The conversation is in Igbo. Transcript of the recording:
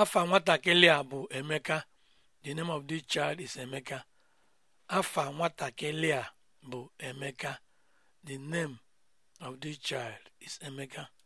afa nwatakịrị a bụ Emeka the name of the child is Emeka